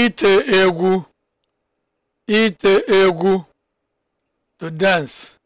ite egwu ite egwu to dance